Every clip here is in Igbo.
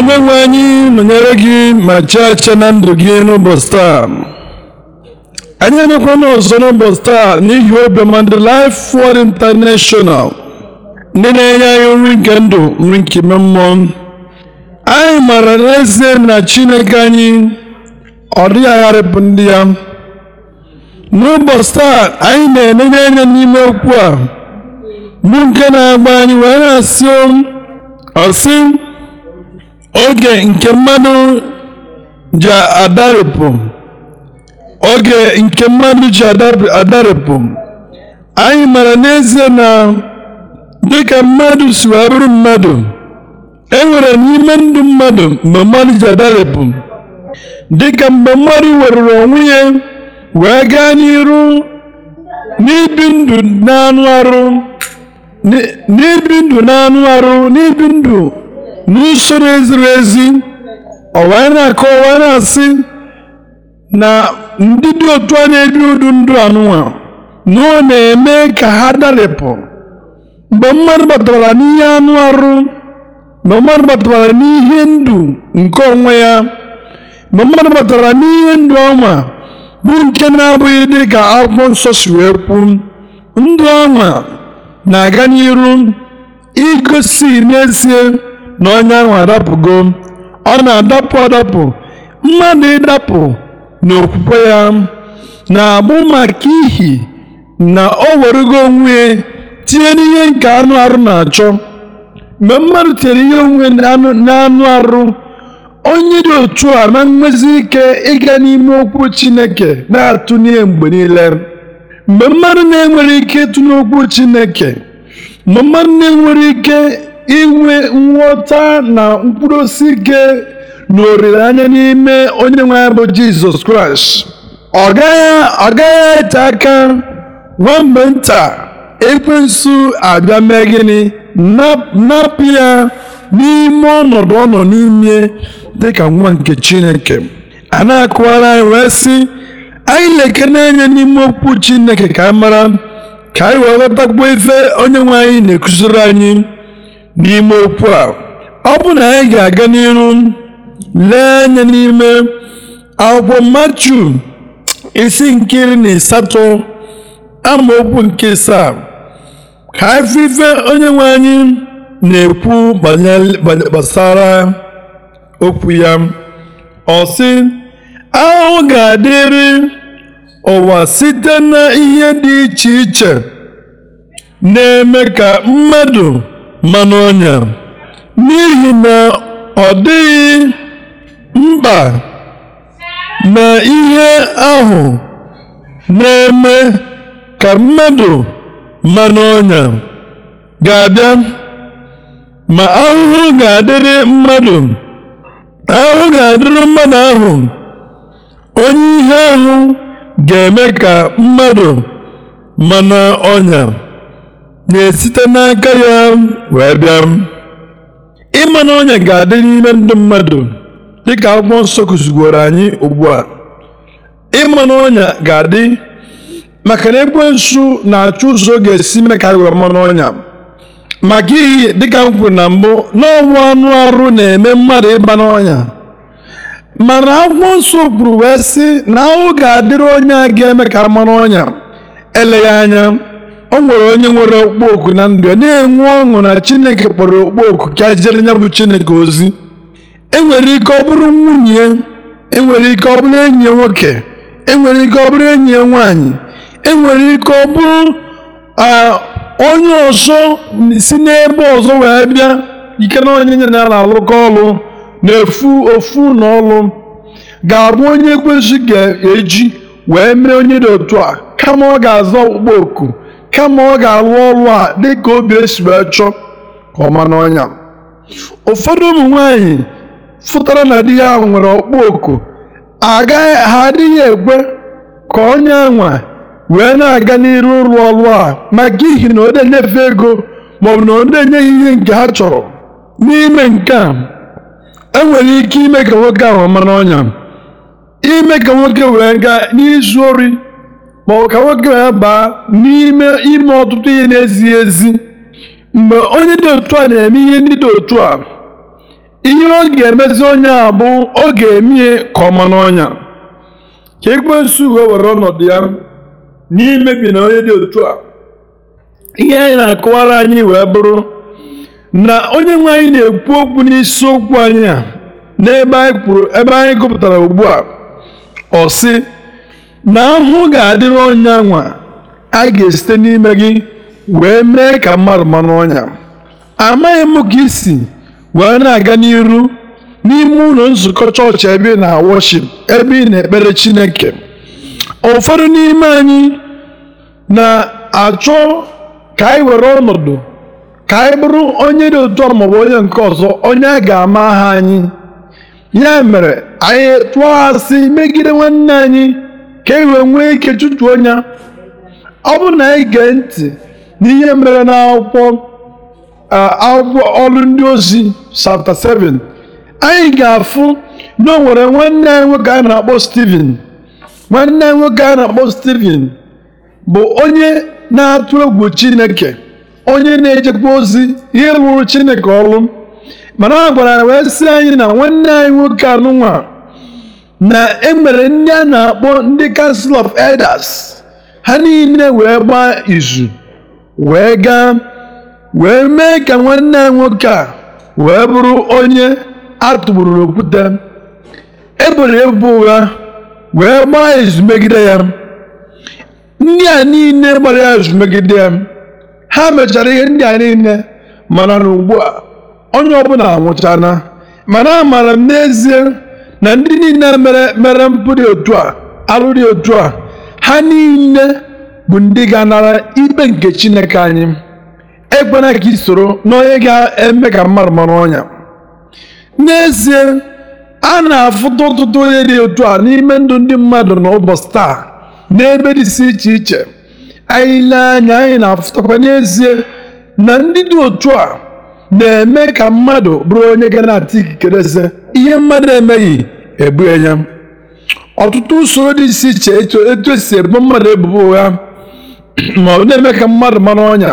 onye nwe anyị nọnyere gị ma chịa chịa na ndụ gị n'ụbọchị taa anyị emekwana ọzọ n'ụbọchị taa n'ihi obiọma ndị Life Word International ndị na-enye anyị nri nke ndụ nri nke ime mmụọ anyị maara n'ezie na Chineke anyị ọ dịghị agharịpụ ndị ya n'ụbọchị taa anyị na-enenye anya n'ime okwu a bụ nke na-agba anyị wee na-asị oge nke mmadụ ji adarịpụ oge nke mmadụ ji adarịpụ anyị mara n'ezie na dịka mmadụ si abụrụ mmadụ e nwere n'ime ndụ mmadụ mgbe mmadụ ji adarịpụ dịka mgbe mmadụ werere onwe ya wee gaa n'iru n'ibi ndụ n'anụ arụ n'ibi ndụ n'anụ arụ n'ibi ndụ n'usoro eziri ezi ọ na-akọ ọ na-asị na ndị dị otu a na-ebi udu ndụ anụnwa na ọ na-eme ka ha darapụ mgbe mmadụ batara n'ihe anụ arụ mgbe mmadụ batara n'ihe ndụ nke onwe ya mgbe mmadụ batara n'ihe ndụ ọnwa bụ nke na-abụghị dị ka akwụkwọ nsọ si wee ndụ ọnwa na-aga n'iru igosi n'ezie na ahụ adapụgo ọ na-adapụ adapụ mmadụ ịdapụ n'okwukwe ya na-abụ maka ihi na o werugo onwe tinye n'ihe nke anụ arụ na-achọ mgbe mmadụ tinyere ihe onwe n'anụ arụ onye dị otu a na nwezi ike ịga n'ime okwu Chineke na-atụ n'ihe mgbe niile mgbe mmadụ na-enwere ike ịtụ n'okwu Chineke mgbe mmadụ na-enwere ike inwe nghọta na mkpụrụ osisi gị na olileanya n'ime onye nwe bụ jizọs kraịst ọ gaghị ete aka nwa mgbe nta ekwensu abịa mee gịnị napụ ya n'ime ọnọdụ ọnọ nọ n'ime dịka nwa nke chineke a na-akụwara anyị wee sị anyị na-ekene anya n'ime okwu chineke ka a mara ka anyị wee ghọtakwuo ife onye nwe anyị na-ekụziri anyị n'ime okwu a ọ bụ na anyị ga-aga n'ihu lee anya n'ime akwụkwọ matu isi nke iri na asatọ amaokwu nke saa ka onye nwe anyị na-ekwu gbasara okwu ya ọ sị ahụ ga-adịrị ụwa site na ihe dị iche iche na-eme ka mmadụ mmanụ ọnya n'ihi na ọ dịghị mkpa na ihe ahụ na-eme ka mmadụ mmanụ ọnya ga-abịa ma ahụhụ ga-adịrị mmadụ ahụhụ ga-adịrị mmadụ ahụ onye ihe ahụ ga-eme ka mmadụ mmanụ ọnya na-esite n'aka ya wee bịa ịma na ọnya ga-adị n'ime ndụ mmadụ dịka akwụkwọ nsọ kụzigoro anyị ugbu a ịma na ọnya ga-adị maka na nsu na-achọ ụzọ ga-esi mee ka aghọ mmanụ ọnya maka ihi dịka m kwuru na mbụ n'ọnwụ anụ arụ na-eme mmadụ ịba n'ọnya mana akwụkwọ nsọ kwuru wee sị na ahụ ga-adịrị onye a ga-eme ka mmanụ ọnya eleghị anya o nwere onye nwere okpukpoku na ndụ ya na-enwe ọṅụ na chineke kpọrọ okpukpoku ka e jere ya bụ chineke ozi enwere ike ọ bụrụ nwunye enwere ike ọ bụrụ enyi nwoke enwere ike ọ bụrụ enyi nwaanyị enwere ike ọ bụrụ onye ọzọ si n'ebe ọzọ wee bịa ike na onye nye na na-alụkọ ọlụ na-efu ofu na ọlụ ga-abụ onye kwesị ga-eji wee mee onye dị otu a kama ọ ga aza okpu oku. kama ọ ga-alụ ọrụ a dịka obi esi wee chọọ ka n'ọnya ụfọdụ ụmụ nwanyị fụtara na di ya ahụ nwere ọkpụ oku agaghị ha adịghị ekwe ka onye nwa wee na-aga n'iru ụlọ ọrụ a maka ihi na ọ na ego maọbụ na ọ enyeghị ihe nke ha chọrọ n'ime nke a enwere ike ime ka nwoke ahụ mara ọnya ime ka nwoke wee gaa n'izu ori ma ọ ka nwoke ya baa n'ime ime ọtụtụ ihe na-ezighị ezi mgbe onye dị otu a na-eme ihe ndị dị otu a ihe ọ ga-emezi onye a bụ ọ ga-eme ka ọma n'ọnya ka ekwensu wee were ọnọdụ ya n'imebi na onye dị otu a ihe anyị na-akọwara anyị wee bụrụ na onye nwe anyị na-ekwu okwu okwu anyị a n'ebe anyị kwuru ebe anyị gụpụtara ugbu a ọ sị na ahụhụ ga-adịrị ọnya nwa a ga-esite n'ime gị wee mee ka mmadụ mara ọnya amaghị m ka isi wee na-aga n'iru n'ime ụlọ nzukọ chọọchị ebe ị na-awọship ebe ị na-ekpere Chineke ụfọdụ n'ime anyị na-achọ ka anyị were ọnọdụ ka anyị bụrụ onye dị otu maọbụ onye nke ọzọ onye a ga-ama aha anyị ya mere anyị tụọ asị megide nwanne anyị ka e wee nwee ike chụtuo ya ọ bụrụ na ị gee ntị n'ihe mere n'akwụkwọ akwụkwọ ọrụ ndị ozi chapter 7 anyị ga-afụ na o nwere nwanne anyị nwoke anyị na-akpọ Stephen nwanne anyị nwoke anyị na-akpọ Stephen bụ onye na-atụ egwu Chineke onye na-ejekwa ozi ihe rụrụ Chineke ọrụ mana a gwara wee sị anyị na nwanne anyị nwoke anụnwa na emere ndị a na-akpọ ndị kansụl of elders ha niile wee gbaa izu wee gaa wee mee ka nwanne ya nwoke a wee bụrụ onye a tụgburu n'okwute eboro ebubo ụgha wee gbaa izu megide ya ndị a niile gbara ya izu megide ya ha mechara ihe ndị a niile mana na ugbu a onye ọbụla anwụchana mana amaara m n'ezie na ndị niile mere mere mpụ otu a arụ dị otu a ha niile bụ ndị ga-anara ikpe nke Chineke anyị ekwena ka isoro n'onye ga-eme ka mmadụ mara ọnya n'ezie a na-afụta ọtụtụ onye dị otu a n'ime ndụ ndị mmadụ na ụbọchị taa n'ebe dịsị iche iche anyị lee anya anyị na-afụtakwa n'ezie na ndị dị otu a na-eme ka mmadụ bụrụ onye ga na-ata ikikere ihe mmadụ emeghị Ebu ya ọtụtụ usoro dị iche iche etu esi ebo mmadụ ebubo ụgha ma ọ na-eme ka mmadụ mara ọnya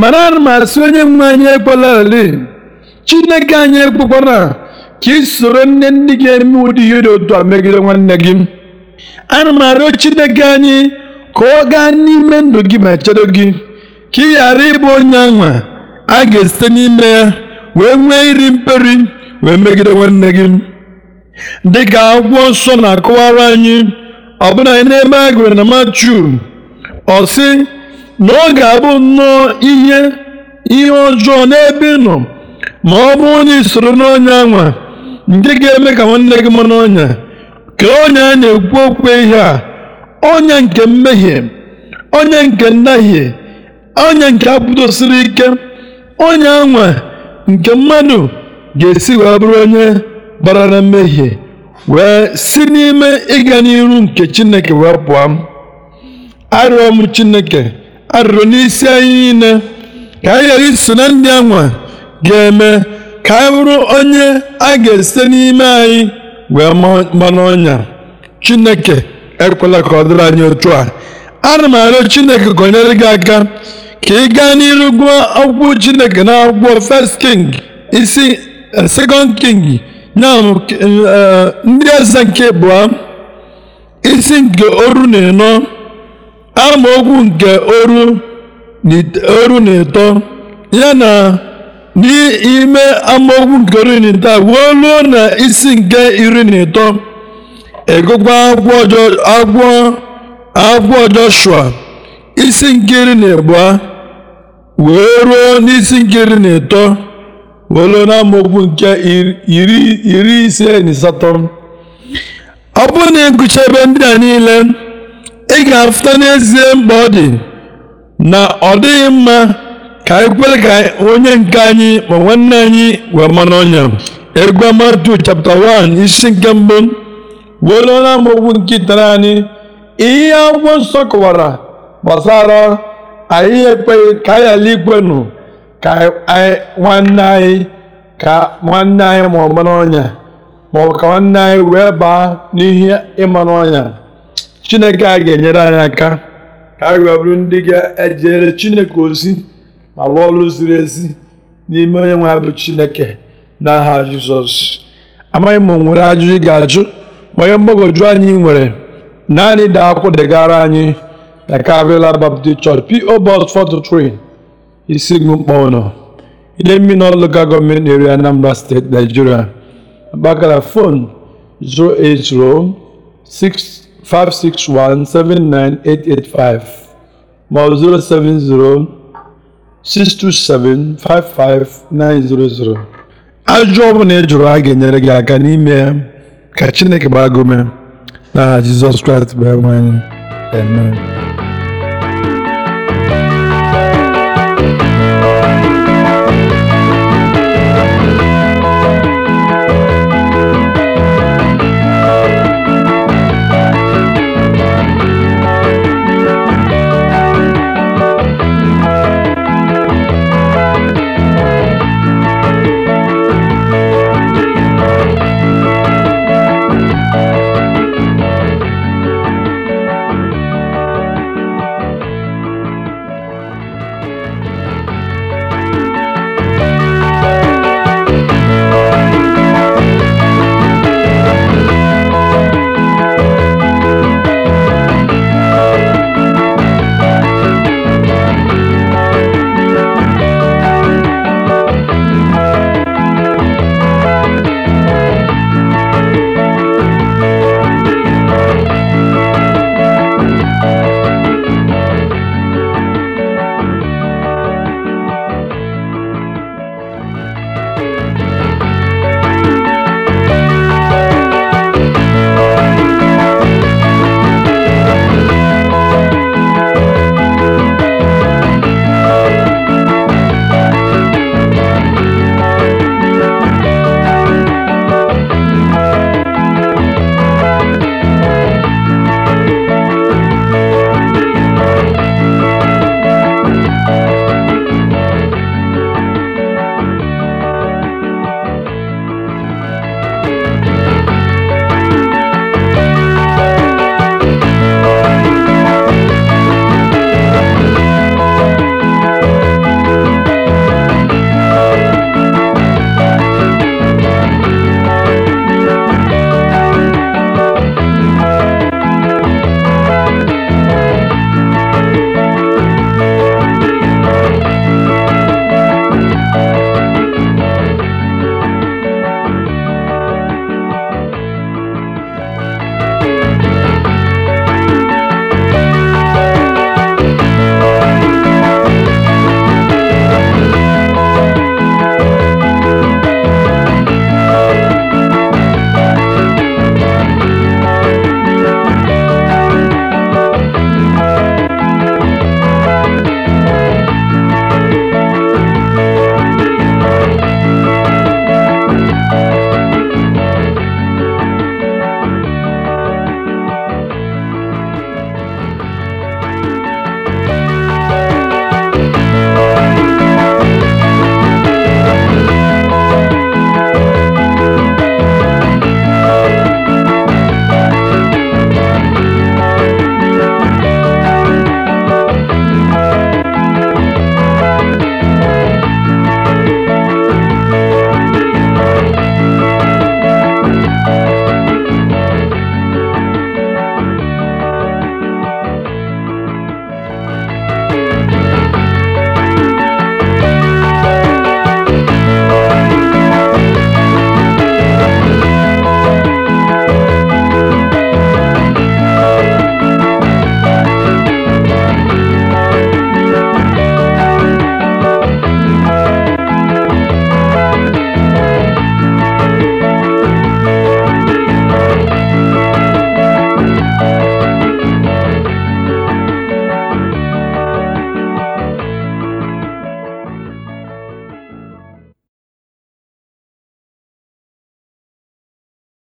mana ana m asị onye nwe anyị ekwelarali chineke anyị a ka ị soro nne ndị gị eme ụdị ihe dị otu a megide nwanne gị ana m arịọ chineke anyị ka ọ gaa n'ime ndụ gị ma chedo gị ka ị ghara ịbụ onye anwa a ga-esite n'ime ya wee nwee iri mperi wee megide nwanne gị dịka akwụkwọ nsọ na-akọwara anyị ọbụna n'ebe a gụrụ na Matiu ọ sị na ọ ga-abụ nnọọ ihe ihe ọjọọ n'ebe nọ ma ọ bụ na isoro n'ọnya anwa nke ga-eme ka nwanne gị mara ọnya ka onye a na-ekwu okwu ihe a onye nke mmehie onye nke ndahie onye nke apụdosiri ike onye anwa nke mmadụ ga-esi wee bụrụ onye gbara na mmehie wee si n'ime ịga n'iru nke chineke wee pụọ arịọ m chineke arịrịọ n'isi anyị niile ka anyị ghara iso na ndị anwa ga-eme ka anyị bụrụ onye a ga-esite n'ime anyị wee manụ ọnya chineke ekwela ka ọ dịrị anyị otu a ana m arịọ chineke gọnyere gị aka ka ị gaa n'iru gụọ akwụkwọ chineke na akwụkwọ first king isi eh, second king E, e, ndị eze nke abụọ isi nke oru na ịnọ amaokwu nke oru na ịtọ ya na n'ime amaokwu nke oru na ịtọ wee ruo na isi nke iri na ịtọ egụkwa agwọ Joshua isi nke iri na abụọ wee ruo n'isi nke iri na ịtọ welu n'amaokwu nke iri ise na asatọ ọ bụrụ na ịgụcha ebe ndị a niile ị ga-afụta n'ezie mkpa ọ dị na ọ dịghị mma ka anyị kwere ka onye nke anyị ma nwanne anyị wee mara ọnya egwu matu chapta 1 isi nke mbụ welu n'amaokwu nke itere anyị ihe akwụkwọ nsọ kọwara gbasara anyị ka anyị ala nụ. ka nwanne anyị ka nwanne anyị ma ọ ka nwanne anyị wee baa n'ihe ịmara ọnya chineke a ga-enyere anyị aka ka anyị wee ndị ga-ejere chineke ozi ma rụọ ọrụ ziri ezi n'ime onye nwe bụ chineke n'aha jizọs amaghị m nwere ajụjụ ị ga-ajụ onye mgbagwoju anyị nwere naanị daa akwụkwọ anyị na Calvary Baptist Church P.O. Box isi ugwu mkpa ụlọ ile mmiri na local government area Anambra State Nigeria Akpakala phone 080 561 79885 ma ọ 070 627 55900 ajụ ọbụla ị jụrụ a ga-enyere gị aka n'ime ya ka Chineke gbaa gị na Jizọs Kraịst bụ enwe anyị